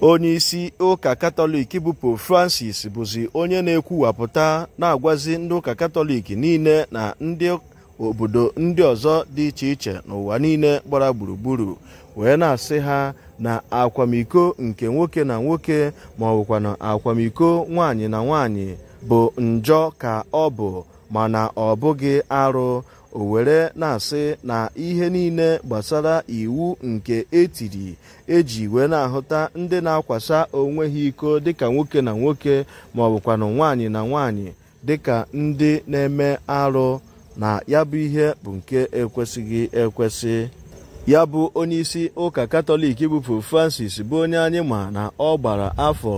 onye isi ụka katọlik bụ Pope Francis bụzi onye na-ekwuwapụta na-agwazi ndị ụka katọlik niile na ndị obodo ndị ọzọ dị iche iche n'ụwa niile gbara gburugburu wee na-asị ha na akwamiko nke nwoke na nwoke ma ọ bụkwa na akwamiko nwaanyị na nwaanyị bụ njọ ka ọ bụ mana ọ bụghị arụ o were na-asị na ihe niile gbasara iwu nke etiri eji wee na-ahụta ndị na-akwasa onwe ha iko dịka nwoke na nwoke ma ọ bụkwanụ nwaanyị na nwaanyị dịka ndị na-eme arụ na ya bụ ihe bụ nke ekwesịghị ekwesị ya bụ onyeisi ụka katọlik bụ Pope Francis bụ onye anyị ma na ọ gbara afọ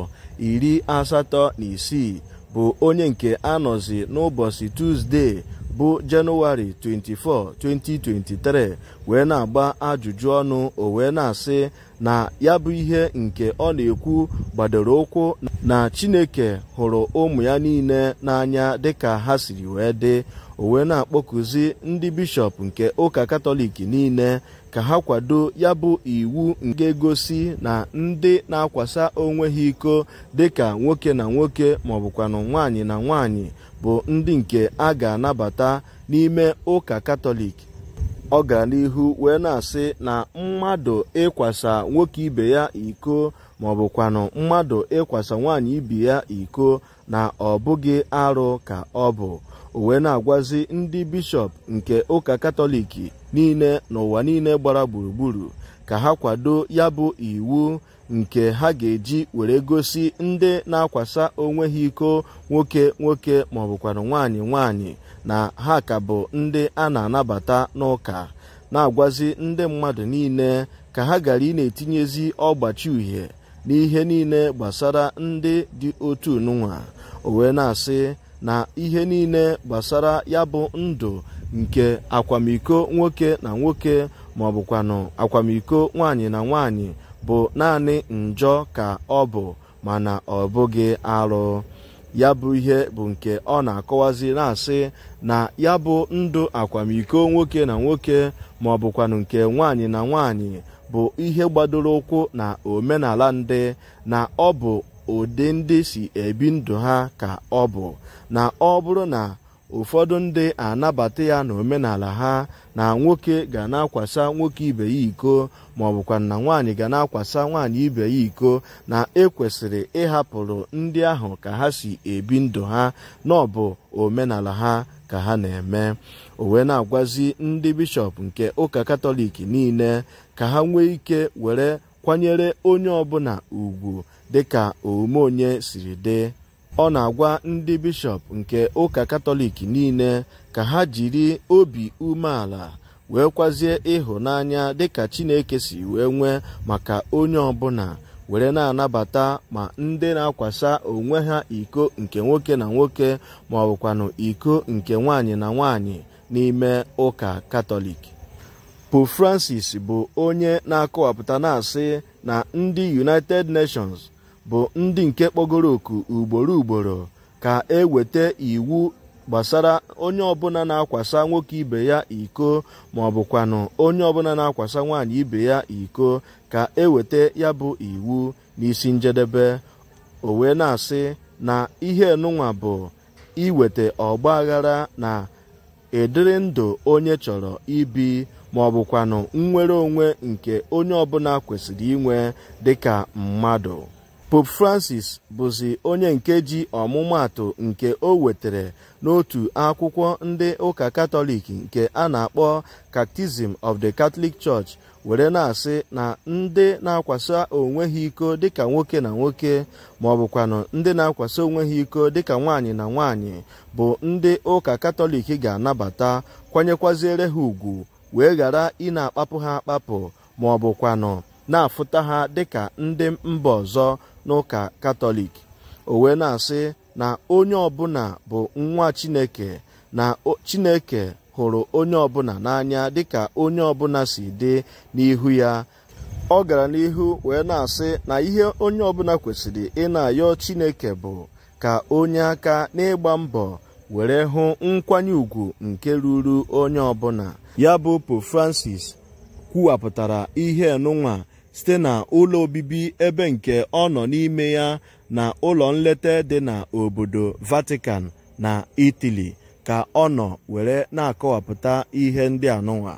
iri asatọ na isii bụ onye nke anọzi n'ụbọchị Tuzdee bụ jenụwarị 24 2023 wee na-agba ajụjụ ọnụ o wee na-asị na ya bụ ihe nke ọ na-ekwu gbadoro ụkwụ na Chineke hụrụ ụmụ ya niile n'anya dịka ha siri wee dị o wee na akpọkụzi ndị bishọp nke ụka katọlik niile ka ha kwado ya bụ iwu nke gosi na ndị na-akwasa onwe ha iko dịka nwoke na nwoke maọbụkwanụ nwaanyị na nwaanyị bụ ndị nke a ga-anabata n'ime ụka katọlik ọ wee na-asị na mmadụ ịkwasa nwoke ibe ya iko ma ọ mmadụ ịkwasa nwaanyị ibe ya iko na ọ bụghị arụ ka ọ bụ o wee na-agwazi ndị bishọp nke ụka katọlik niile n'ụwa niile gbara gburugburu ka ha kwado ya bụ iwu nke ha ga-eji were gosi ndị na-akwasa onwe ha iko nwoke nwoke maọbụkwara nwaanyị nwaanyị na ha ka bụ ndị a na-anabata n'ụka na-agwazi ndị mmadụ niile ka ha gara ị etinyezi ọgbachi uhie n'ihe niile gbasara ndị dị otu nwa o na-asị na ihe niile gbasara ya bụ ndụ nke akwamiko nwoke na nwoke ma ọ bụkwanụ akwamiko nwaanyị na nwaanyị bụ naanị njọ ka ọ bụ mana ọ bụghị arụ ya bụ ihe bụ nke ọ na-akọwazi na-asị na ya bụ ndụ akwamiko nwoke na nwoke ma ọ bụkwanụ nke nwaanyị na nwaanyị bụ ihe gbadoro ụkwụ na omenala ndị na ọ bụ ụdị ndị si ebi ndụ ha ka ọ bụ na ọ bụrụ na ụfọdụ ndị anabata ya na omenala ha na nwoke ga na-akwasa nwoke ibe ya iko ma na nwaanyị ga na-akwasa nwaanyị ibe ya iko na ekwesịrị ịhapụrụ ndị ahụ ka ha si ebi ndụ ha na ọ omenala ha ka ha na-eme o na-agwazi ndị bishọp nke ụka katọlik niile ka ha nwee ike were kwanyere onye ọbụla ugwu dịka omume onye siri dị ọ na-agwa ndị bishọp nke ụka katọlik niile ka ha jiri obi umeala wee kwazie ịhụnanya dịka chineke si wee nwee maka onye ọbụla were na-anabata ma ndị na-akwasa onwe ha iko nke nwoke na nwoke ma ọ bụkwanụ iko nke nwaanyị na nwaanyị n'ime ụka katọlik pope francis bụ onye na-akọwapụta na-asị na ndị united nations bụ ndị nke kpọgoro oku ugboro ugboro ka eweta iwu gbasara onye ọbụla na-akwasa nwoke ibe ya iko ma ọ onye ọbụla na-akwasa nwaanyị ibe ya iko ka eweta ya bụ iwu n'isi njedebe o wee na-asị na ihe nụnwa bụ iweta ọgba aghara na ịdịrị ndụ onye chọrọ ibi ma ọ nnwere onwe nke onye ọbụla kwesịrị inwe dịka mmadụ Pope Francis bụzi onye nke ji ọmụmaatụ nke o wetere n'otu akwụkwọ ndị ụka Katọlik nke a na-akpọ Catechism of the Catholic Church were na-asị na ndị na-akwasa onwe ha iko dịka nwoke na nwoke ma ọ bụkwanụ ndị na-akwasa onwe ha iko dịka nwaanyị na nwaanyị bụ ndị ụka Katọlik ga-anabata kwanyekwaziere ha ugwu wee ghara ị na-akpapụ ha akpapụ ma ọ bụkwanụ na-afụta ha dịka ndị mba ọzọ n'ụka katọlik o wee na-asị na onye ọbụla bụ nwa chineke na chineke hụrụ onye ọbụla n'anya dịka onye ọbụla si dị n'ihu ya ọ gara n'ihu wee na-asị na ihe onye ọbụla kwesịrị ị na-ayọ chineke bụ ka onye aka n'ịgba mbọ were hụ nkwanye ugwu nke ruru onye ọbụla ya bụ Pope Francis kwuwapụtara ihe nụnwa site na ụlọ obibi ebe nke ọ nọ n'ime ya na ụlọ nleta dị na obodo Vatican na Italy ka ọ nọ were na-akọwapụta ihe ndị anụnwa